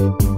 Thank you.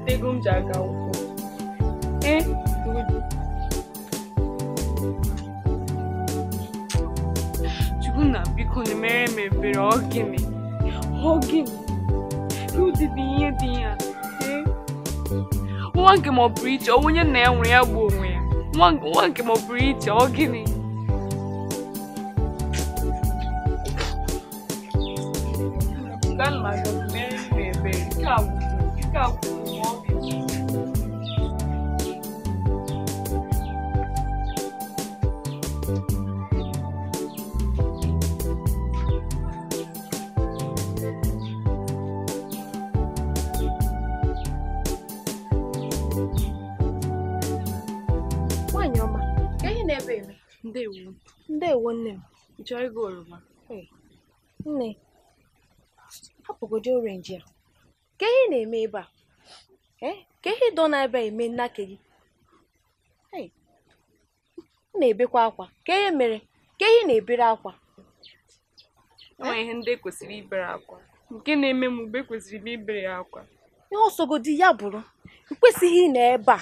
weta ego m ji aga akwụkwọ ee Chukwuna biko na mere m ebere ọ gịnị ọ gịnị dị ihe dị ya e? nwa nke ma ọ bụrụ iche onye na ya nwere ya bụ onwe ya nwa nke ma ọ bụrụ iche ọ gịnị Ndewo. Ndewo nne m. Ị chọrọ ịga oroma? Ee. Nne, hapụgodi orenji a. Ka ihe na-eme ebe a? Ee, ka ihe ịdọ na abịa a eme nnake gị? M na-ebekwa akwa. Ka ihe mere? Ka ihe na-ebere akwa? E ihe ndị kwesịrị ibere akwa. Nke na-eme m mgbe kwesịrị m ibere ya akwa. Ihe ọsọgodi ya bụrụ, i kwesịghị ị nọ ebe a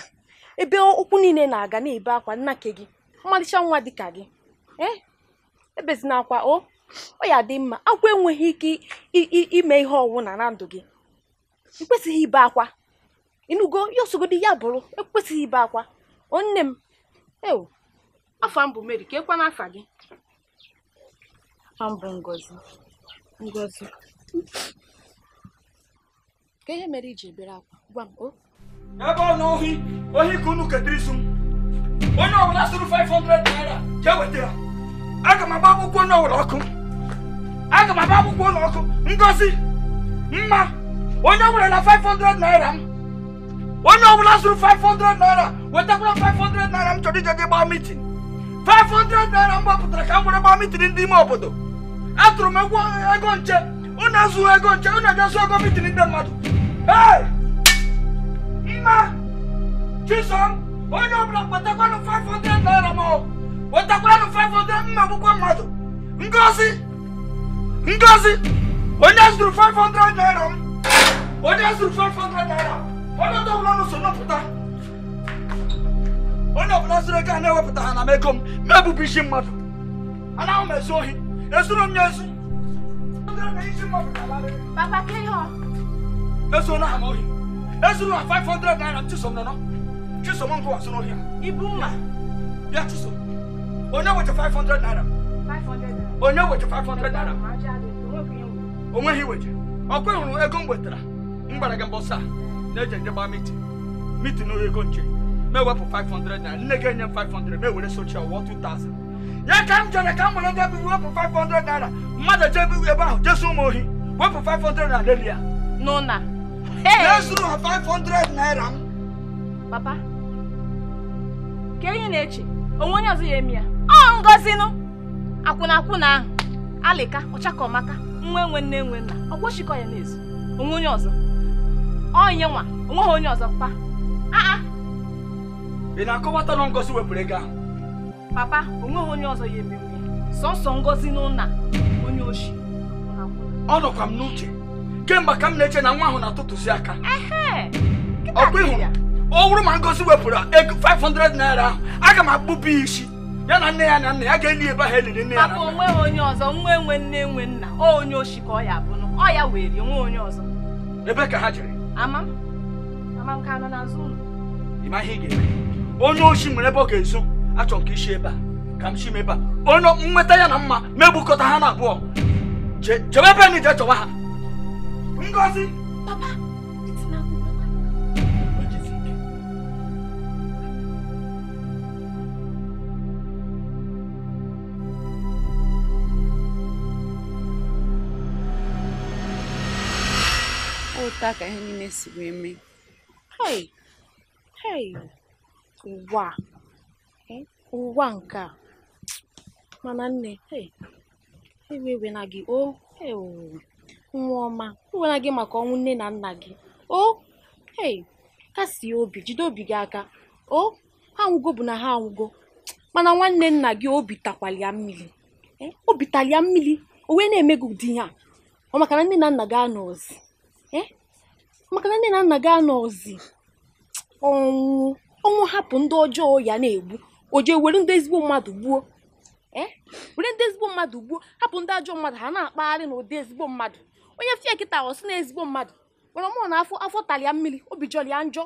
ebe ụkwụ niile na-aga na-ebe akwa nnake gị. ọmalịcha nwa dịka gị eh? ebezina akwa o ọ ya dị mma akwa enweghị ike ime ihe ọwụna na ndụ gị ekwesịghị ibe akwa ịnụgo ya osogodi ya bụrụ ekwesịghị ibe akwa onne m ewu afọ mbụ meri ka ekwa n'afa gị afọ bụ ngozi ngozi ka ihe mere iji ebere akwa gwa m o ebe ọ na ohi ohi ka unu ketara isu m wannan wula suru 500 naira ke wetara aga m agba akwụkwọ n'ụlọ ọkụ aga m agba akwụkwọ ụlọ ọkụ ngozi mma onye ọbụla na 500 naira m onye ọbụla zụrụ 500 naira wetakwara 500 naira m chọrọ ije gị gbaa mitin 500 naira m gbapụtara ka m were gbaa mitin ndị ime obodo atụrụ m egwu ego nche unu azụghị ego nche unu ejezu ego mitin ndị mmadụ mma chisom onye ọbụla kpatakwanụ 500 naira ma wetakwanụ 500 mma akwụkwọ mmadụ ngozi ngozi onye zụrụ 500 naira m onye zụrụ 500 naira onye ọbụla nụ so nọpụta onye ọbụla zụrụ ego a na-ewepụta ha na m ego m ma ebụbụ isi mmadụ anaghị m ezu ohi ezuru m ya ezu Papa, Kenyọ. Ezuru ha m ohi. Ezuru ha 500 naira m chisom nọ. Chisom uncle was not here. Ibuma. Yeah, Chisom. Oh, now with the 500 naira. 500 naira. Oh, now with the 500 naira. Oh, when he waited. Oh, go on, I go with her. Mbaragan Bossa. Legend about meeting. Meeting no country. May work for 500 naira. Negain 500. May with a social war 2000. Yeah, come to the camera and then we for 500 naira. Mother Jabby, we about just so more. Work for 500 naira. No, na. Hey! Let's do 500 naira. Papa. ka enyi na-eche onwe onye ọzọ ya eme ya ọ ngozinụ akwụna akwụna ahụ alịka ọmaka nwa enwe nne enwe nna ọ gbochikọ ya n'ezu onwe onye ọzọ onye nwa onweghị onye ọzọ pa aa ị na-akọwata na wepụrụ ego ahụ papa onweghị onye ọzọ ya emenwe sọsọ ngozi n'ụna onye ochi ọ nọkwa m n'uche kemgbe ka m na-eche na nwa ahụ na atụtụsi aka ọkwa ịhụrụ ọ bụrụ ma Ngozi wepụrụ ego 500 naira ahụ aga m akpụpụ isi ya na nne ya na nna ya ga-eli ebe ahụ eliri nne ya na onwe onye ọzọ nwa enwe nne enwe nna onye oshi ka ọ ya bụ ọ ya were nwa onye ọzọ ebe ka ha jiri. ama ama m ka anọ n'azụ ụlọ ịma ihe ị ga-eme onye oshi nwere ebe ọ ga-ezo achọ nke isi ebe a ka m chi ebe a onye nweta ya na mma megbukọta ha na abụọ chebe ebe na ije chọwa ha Ngozi papa Otu a ka ihe niile si wee mee. Hei! Hei! Ụwa! um Ụwa nke a! Mana nne um ewe ewena gị oh, nwa ọma e na gị maka ọnwụ nne na nna gị oo oh, um kasie obi jide obi gị aka oh! ha anwụgo bụ na ha anwụgo mana nwanne nna gị obi takwara ya mmiri um obi tara mmiri o wee na-eme gị ụdị ọ maka na nne na nna gị anọzi eh, maka na nne na nna gị anọzi ọnwụ ọnwụ hapụ ndị ọjọọ ya na-egbu o jee were ndị ezigbo mmadụ gbuo e? were ndị ezigbo mmadụ gbuo hapụ ndị ajọ mmadụ ha na-akpagharị na ụdị ezigbo mmadụ onye fie kịta ọsị na ezigbo mmadụ gwara mụ na afọ afọ talịa mmiri obi jọrọ ya njọ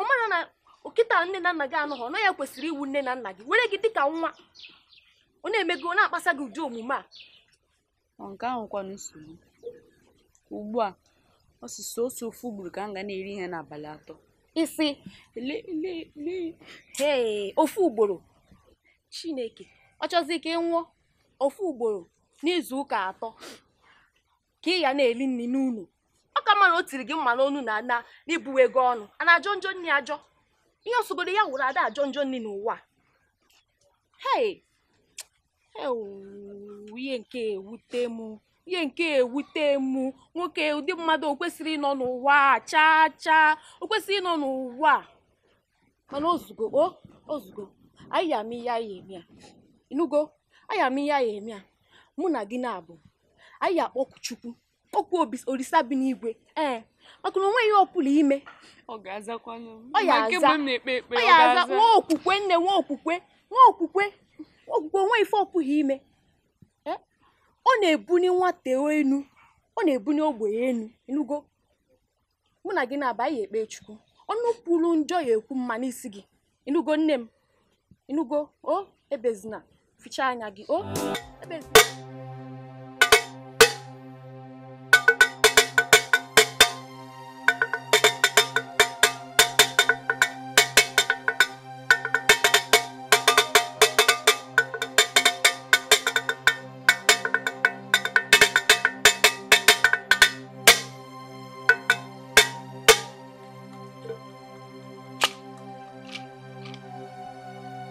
ọ mara na nkịta nne na nna gị anọghị ọ naghị kwesịrị iwu nne na nna gị were gị dịka nwa ọ na-eme gị ọ na-akpasa gị ụdị omume a nke ahụkwa nsogbu ugbu a Ọ sị ofu ugboro ka m ga na-eri ihe n'abalị atọ isi hee ofu ugboro chineke ọ chọzi ka ị ofu ugboro n'izu ụka atọ ka ị ya na-eri nri n'ụlọ ọ ka mma na o tiri gị mma n'onu na na n'ibuwe ego ọnụ a na-ajọ njọ nri ajọ ihe osogoro ya wụrụ ada ajọ njọ nri n'ụwa hei ihe nke ewute m ihe nke ewute mụ nwoke ụdị mmadụ o kwesịrị ịnọ n'ụwa chaa chaa o kwesịrị ịnọ n'ụwa mana ozugo o ozugo anyị ya ama ihe anyị eme a anyị ama ihe anyị eme mụ na gị na-abụ anyị akpọkụ chukwu okwu olisa bi n'igwe ee maka na onweghị ọpụrụ ime ọ ya aza nwa okwukwe nne nwa okwukwe nwa okwukwe okwukwe onwe ife ọpụghị ime ọ na-ebuni nwata enu ọ na-ebuni ogbenye enu enugo mụ na gị na-aba ihe ekpe chukwu ọnụ kwuru njọ ya ekwu mma n'isi gị enugo nne m enugo o ebezina ficha anya gị o ebezina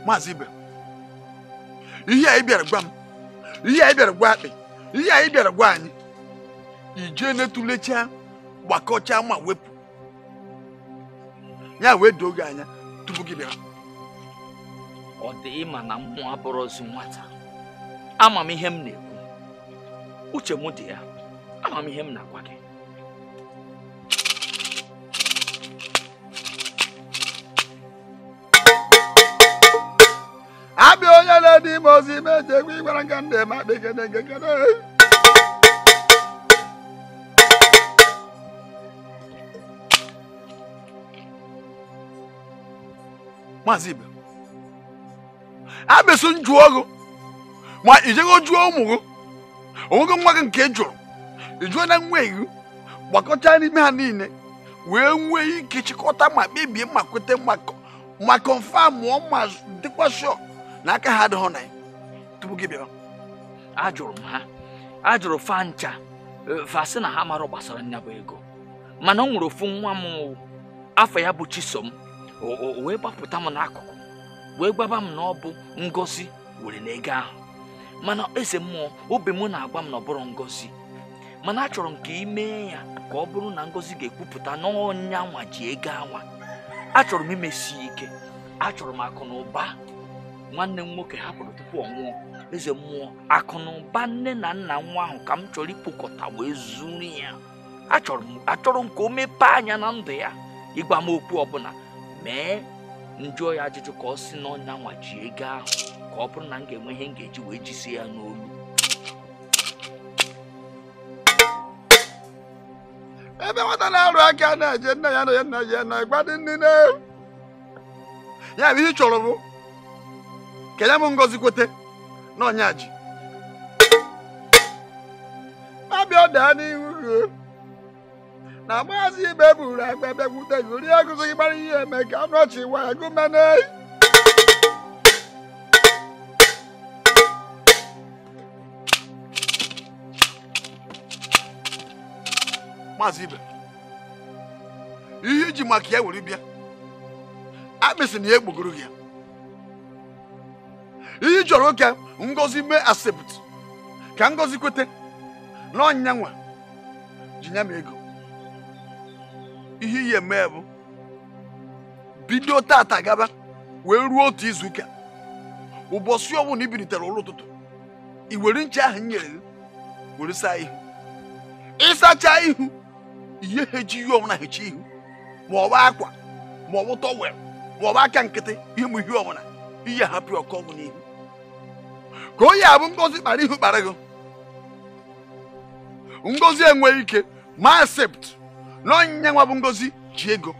maazị ibe ihe a ị bịara gwa m ihe a ị bịara gwa akpị ihe a ị bịara gwa anyị ije netụlechaa gbakọchaa ma wepụ ya wee doo gị anya tupu gị bịara ọ dị ịma na mmụọ abụrụzi nwata ama m ihe m na-ekwu uche m dị ya ama m ihe m na-agwa gị ime ozi ime eji egwu ịgwara nga ndị eme akpa ikene nke kene maazị ibe abịsụ njụọ gụ ma ijego jụọ ụmụ gị onwego nwa gị nke jụrụ ijụọ na nwa gị n'ime ha niile wee nwee ike chịkọta ma kpebie ma kweta ma kọnfam ma dịkwa shọk na aka ha adịghị na tupu gị bịa ajụrụ m ha ajụrụ fa ncha vasị e, na ha mara gbasara nya bụ ego mana ọ nwere ofu nwa m afọ ya bụ chisom wee gbapụta m n'akụkụ wee gbaba m na ọ bụ ngozi were n'ego ahụ mana eze mmụọ obi m na-agwa m na ọ bụrụ ngozi mana achọrọ m ka ị mee ya ka ọ bụrụ na ngozi ga-ekwupụta n'ọnya nwa ji ego anwa achọrọ m imesi ike achọrọ m akụ na ụba nwanne m nwoke hapụrụ tupu ọ nwụọ eze mmụọ akụ na ụba nne na nna nwa ahụ ka m chọrọ ịkpokọta wee zuru ya achọrọ m ka o mepee anya na ndụ ya ịgwa m okwu ọbụla mee njụọ ya ajụjụ ka ọ si n'ọnya nwa ego ahụ ka ọ bụrụ na m ga-enwe ihe m ga-eji wee jisie ya n'olu ebe nwata na-arụ aka na-eje nna ya na ya nna ya na ịgba dị nne ya bụ ihe ị chọrọ bụ kelee m ngozi kwete n'ọnya ji abịa daa n'ihu ruo na maazị ibe e buru agba bịakwute gị rie agụzị gị gbara ihe eme ka anụ ọchị waya gụmene maazị ibe ihe iji maka ya were bịa akpịsị na ya egbogoro gị ya ihe chọrọ oke ngozi mee asept ka ngozi kwete na ọnyanwa ji ya m ego ihe iyi mee bụ bido tata gaba wee ruo otu izuụka ụbọchị ọbụla ibilitere ụlọ ụtụtụ i were ncha ahụ nyere gị were saa ihu ịsacha ihu ihe hechi ihe ọbụla hechi ihu ma ọ bụ akwa ma ọ bụ tọwel ma ọ bụ aka nkịtị ihe mụ ihe ọbụla ihe hapụ ọkụ ọgwụ n'ihu ka onye abụ ngozi kpara ihu kpara gị ngozi enweghị ike ma asept n'onye bụ ngozi ji ego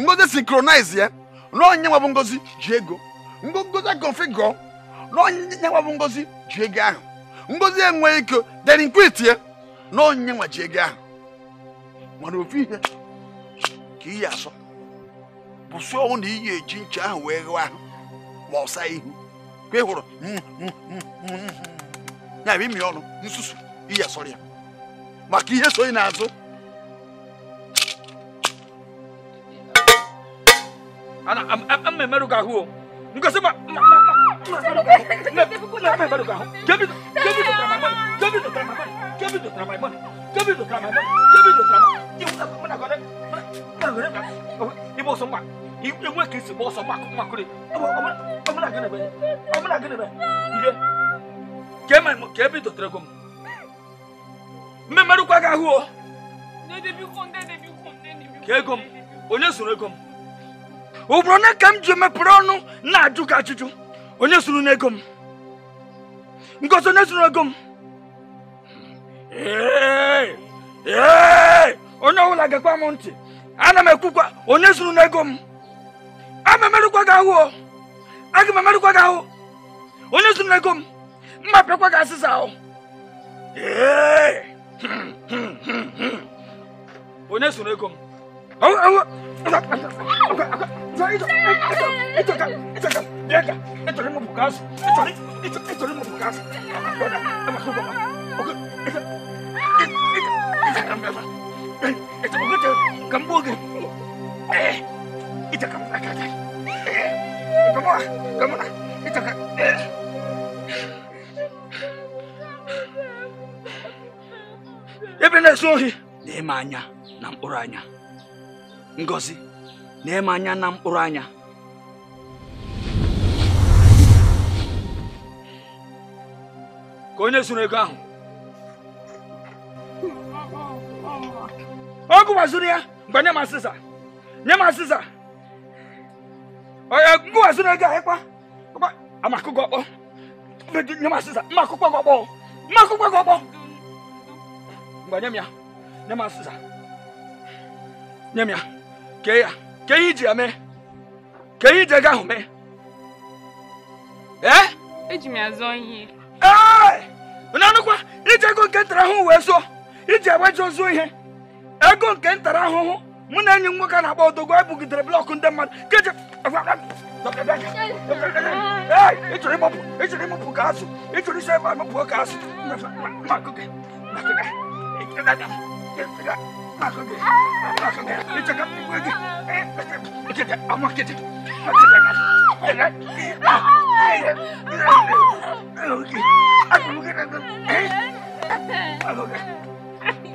ngozi sinkronize ya na bụ ngozi ji ego ngozi configure na onyinye nwa bụ ngozi ji ego ahụ ngozi enweghị ike derinkwit ya na nwa ji ego ahụ mana ofu ihe ka iyi asọ bụsụọ ọnwụ na iyi eji nche ahụ wee ghụọ ahụ ma ọsa ihu ka ị hụrụ ya bụ imi ọnụ nsusu iyi asọrọ que maka ihe so me na-azụ mmemerụ gị ahụ trabalho? ngosi me mmemerụ gị ahụ me dụtara my money me dụtara my money me dụtara my money me dụtara my money me dụtara my money me ọsọ ngwa enwe ka esi gba ọsọ gbakụmakụrị ọmụna gịnịbe ihe ka ema ka ebe dotere gị m mmemerụkwa gị ahụ o ka ego m onye zụrụ ego m ụbụrụ na ka m ji mepere ọnụ na-ajụ gị ajụjụ onye zụrụ n'ego m ngozi onye zụrụ ego m onye ọbụla gekwa m ntị ana m ekwukwa onye zụrụ n'ego m amamalukwaga awo akimamalukwaga awo onezunakom mmapekwaga asisa awo onezunakom Eh. itu kamu eh, kamu lah kamu lah ya Suhi nemanya nam uranya ngozi nemanya nam uranya ka onye zuru ego ahụ ya banyak masisa, m masisa. ngụwazi na ego ahịkwa amakụkọ ọkpọ nye m asịsa mma akwụkwọ gị ọkpọ mma akwụkwọ gị ọkpọ mgbe nye m ya nye m asịsa nye m ya kee ya kee ihe iji ya mee kee ihe iji ego ahụ mee ee eji m ya zụọ ihe ee onye anụkwa iji ego nke ntara itu itu itu saya aku. mụ na enyi nwoke a na-akpọ otogo e bugidere blọkụ ndị mmadụ keje ịchọrọ ịmụpụ ịchọrọ ịmụpụ ka azụ ịchọrọ isi ebe amụpụo ka azụ Okay.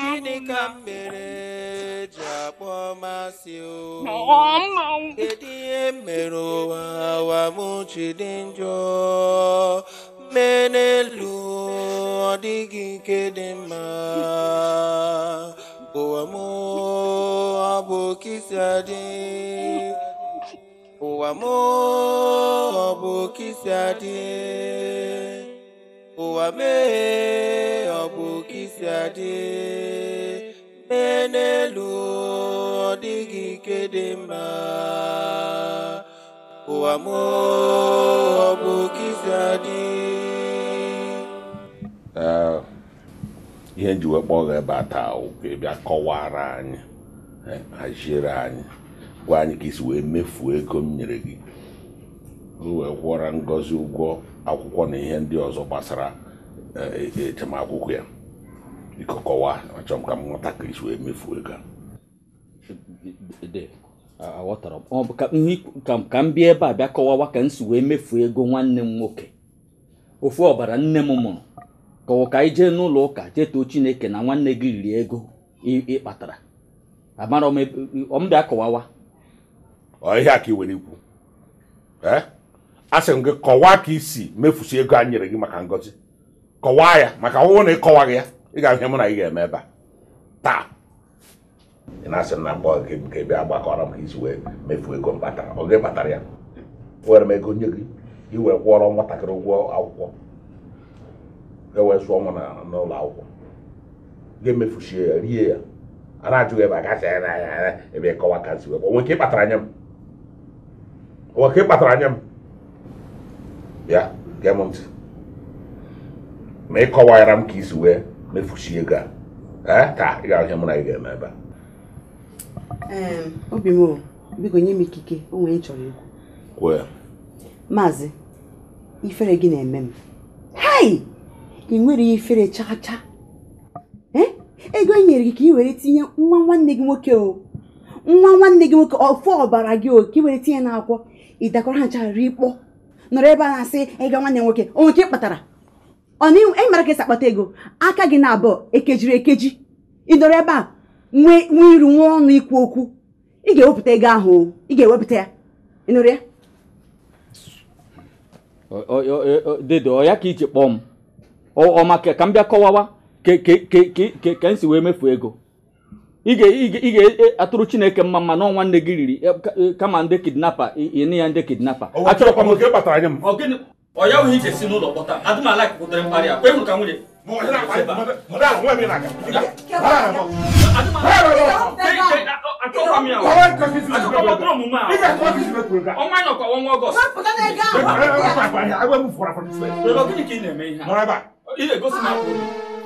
gịnị ka m mere eji akpọ masị wa kedu ihe mere lu awa m ma. dị njọ mee n'elu ọ dịghị nke dị m ọ bụ kisi m ọ bụ ụwa mee ọ bụ isi adị mee n'elu ọ dịghị ike dị mma ụwa m ọ bụ isi adị ihe nji wee kpọọ ebe a taa kọwara anyị e, haziere anyị gwa anyị ka isi wee mefuo ego m nyere gị o wee kwụọra ngozi ụgwọ akwụkwọ na ihe ndị ọzọ gbasara echemakwụkwọ e, ya ikọkọwa kọwaa achọrọ m ka m ghọta ka isi wee mefuo ego aghọtara ọ bụ ka m bịa ebe a bịa kọwawa ka m si wee mefuo ego nwanne m nwoke ofu ọbara nne m mụrụ kọwa ka ije n'ụlọ ụka jee chineke na nwanne gị riri ego ịkpatara amara m bịa kọwawa ọ ihe a ka ị were ikwu ee eh? asị m gị kọwaa ka isi mefusi ego a nyere gị maka ngozi kọwaa ya maka ọwụwụ na ịkọwa gị ya ị ga-ahụ ihe mụ na ị ga-eme ebe a taa ị na-asị na mgbe gị nke ebe gbakọrọ m ka isi wee mefu ego mkpata kpatara ọ gị kpatara ya were m ego nye gị iwe kwụọrọ nwatakịrị ụgwọ akwụkwọ e wee zụọ nwa n'ụlọ akwụkwọ ga-emefuchie ya rie ya a na-ajụghị ebe a gacha ya ebe ịkọwa ka nsi wee kpatara anya m. onwe nke kpatara anya m bịa gee m ntị ma ị kọwara m ka isi wee mefuchi ego a taa ị ga-ahụ ihe mụ na gị ga-eme ebe obi m o biko nye m ikike o nwere chọrọ ego kwuo maazị ifere gị na-eme m hai ị nwere ifere chaa ego e nyere gị ka ị were tinye nwa nwanne gị nwoke o nwa nwanne gị nwoke ofu ọbara gị o ka ị were tinye n'akwụkwọ ị dakọrọ ha ncha rikpọ nọrọ ebe a na-asị ịga nwanne nwoke onwe nke kpatara ọnaihu ị mara ka esi akpata ego aka gị na abụọ ekejiri ekeji ị nọrọ ebe a nwee iru nwee ọnụ ikwu okwu ị ga-ewepụta ego ahụ ị ga-ewepụta ya ị ya dedo ọ ya ka iji kpọọ m ọma ka m bịa kọwawa ka m si wee mefu ego ị ga-atụrụ chineke mma mma n'ọnwa nne gị riri kama ndị kidnapa ịnị ya ndị kidnapa achọrọkwa m oke kpatara nye m ọ ya nwere ije si n'ụlọ kpọta adịm ala kpụtara mkparị a kwe m ka nwunye ọnwa ya ọkwa ọnwa ọgọst ị na-eme ihe a ị na-egosi na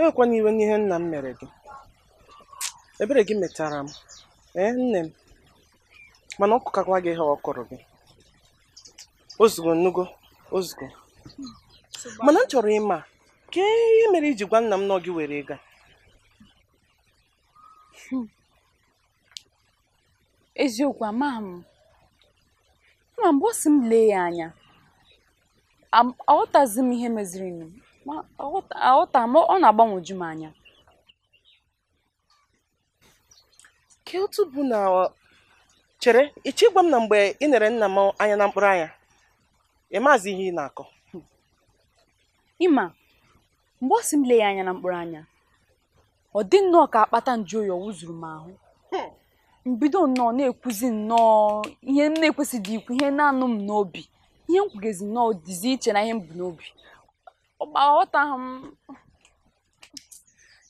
Ewekwana iwe n'ihe nna m mere gị, ebere gị metara m e nne m, mana ọ kụkakwa gị ihe ọ kụrụ gị. Ozugbo nnugo ozugbo, mana m chọrọ ịma kee ihe mere iji gwa nna m nọ gị were ịga a? Eziokwu m mgbe ọ sị m lee ya anya aghọtazi m ihe mezirinụ ma aghọta ma ọ na-agbanwoju m anya ka otu bụ na ọ chere ịchọ ịgwa m na mgbe ị nere nna m anya na mkpụrụ anya ịmazi ihe ị na-akọ ịma mgbe ọ sị m lee ya anya na mkpụrụ anya ọ dị nnọọ ka akpata nju oyi wụzuru m ahụ mbido hmm. nnọọ na-ekwuzi nnọọ ihe m na-ekwesịghị ikwu ihe na-anụ m n'obi ihe m kwugezi nnọọ dizi iche na ihe m bụ n'obi ọgba aghọtaghị m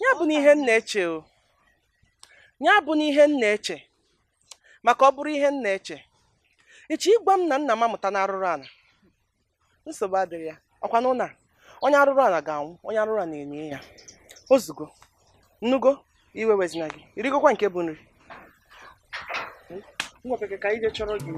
ya bụ na ihe m na-eche o ya bụ na ihe m na-eche maka ọ bụrụ ihe m na-eche echi ịgwa m na nna m amụta na arụrụ ala nsogbu adịrị ya ọkwa na onye arụrụ ala ga-anwụ onye arụrụ ala na-enye ya Ozugbo, nnugo iwe wezina gị irigokwa nke bụ nri ka chọrọ gị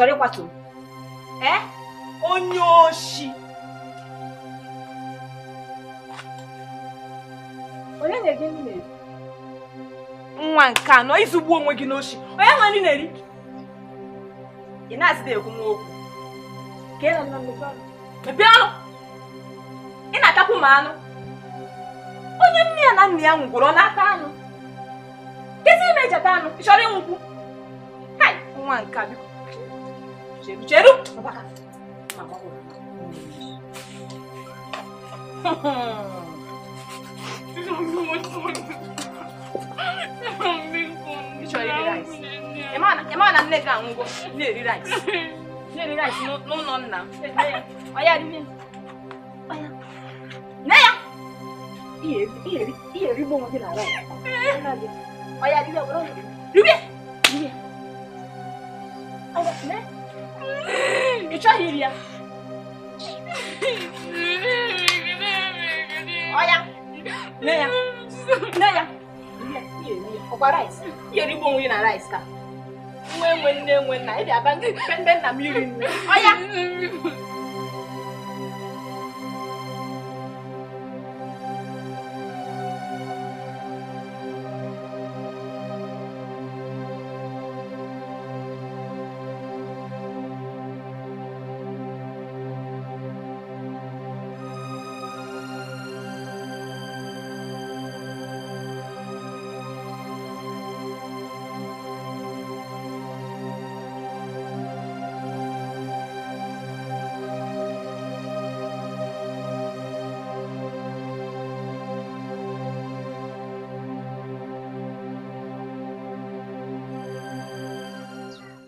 chọrọ ịkwatu m onye oshi onye na ege nri nwa nke anọ izugbu onwe gị n'oshi onye nwe nri na-eri ị na-asịda ekwu m okwu mepee ọnụ ị na-atakwu m anụ onye nne ya na nna ya nwụgworo n'aka anụ kezi ime ejeta anụ ị chọrọ ịnwụkwu nwa nke a biko Cheiro, cheiro. Vem pra cá. Deixa eu ir rice. Emma na nne ga ngo. Ne ri rice. Ne ri rice no no no na. Oya ri mi. Oya. Ne ya. Iye iye iye ri bo mo ti na ra. Oya ri le bro. Ri bi. Ri bi. Oya ne. chọghị ya ọya nne ya nne ya ọkwa rice ihe rigbo onwe na rice ka nwe nwe nne nwe na ị dị aba ndị na mmiri nne iri nri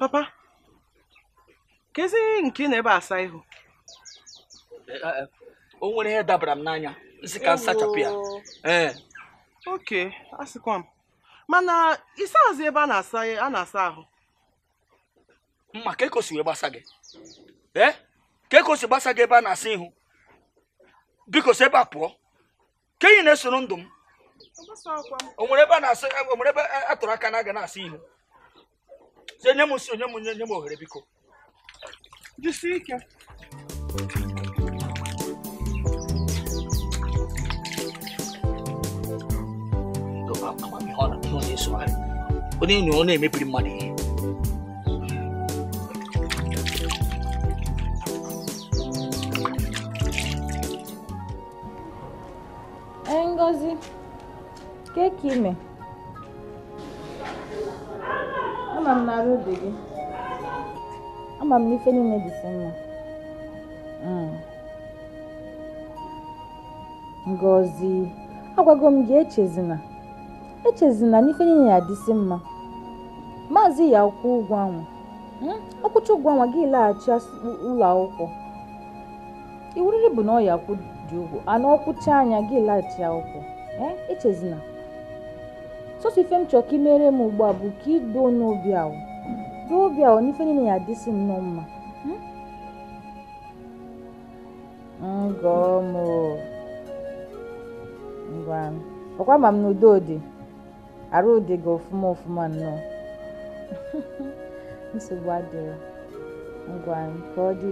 Papa, kezi nke ị na-ebe asa ihu? Eh, eh, o nwere ihe dabara m n'anya, nsị ka nsachapụ ya. Ee. Eh. Oke, asịkwa m. Mana ịsa azụ ebe a na-asa a na-asa ahụ. Mma ka e wee gbasa gị. Ee, ka e gbasa gị ebe a na-asa ihu. Biko si ebe a pụọ. Ka enyi na-esoro ndụ m. O nwere ebe a na-asa, ebe a tụrụ aka na-aga na-asa ihu. onye m si onye m nye nye m ohere biko jisie ike onye enyi ọ na-emebiri mmadụ ihe Ngozi, o que é que, meu? ama m na arụ dị gị. Ama m n'ife niile dị si mma. Mm. ngozi agwago m gị echezina echezina n'ife niile na-adịsị mma. Maazị ya ụkwụ ụgwọ anwa. Mm? Ọkwụcha ụgwọ ahụ gị laghachi ụlọ akwụkwọ. Iwuriri bụ na ọ ya akwụ dị ụgwọ, ana ọkwụcha anya gị laghachi akwụkwọ. Eh? Echezina. sọsọ ife m chọrọ ka imere m ugbu a bụ ka idoo n'obi ahụ doo obi ahụ n'ife niile ya adịsị m nnọọ mma hmm? ọkwa ma m n'udo dị arụ dị gị ọfụma ọfụma nnọọ nsogbu adịrị ngwa ka ọ dị